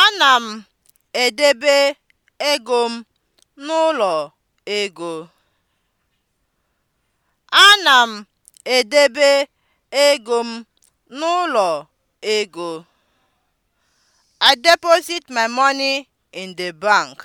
Ana m edebe ego m n'ụlọ ego. I deposit my money in the bank.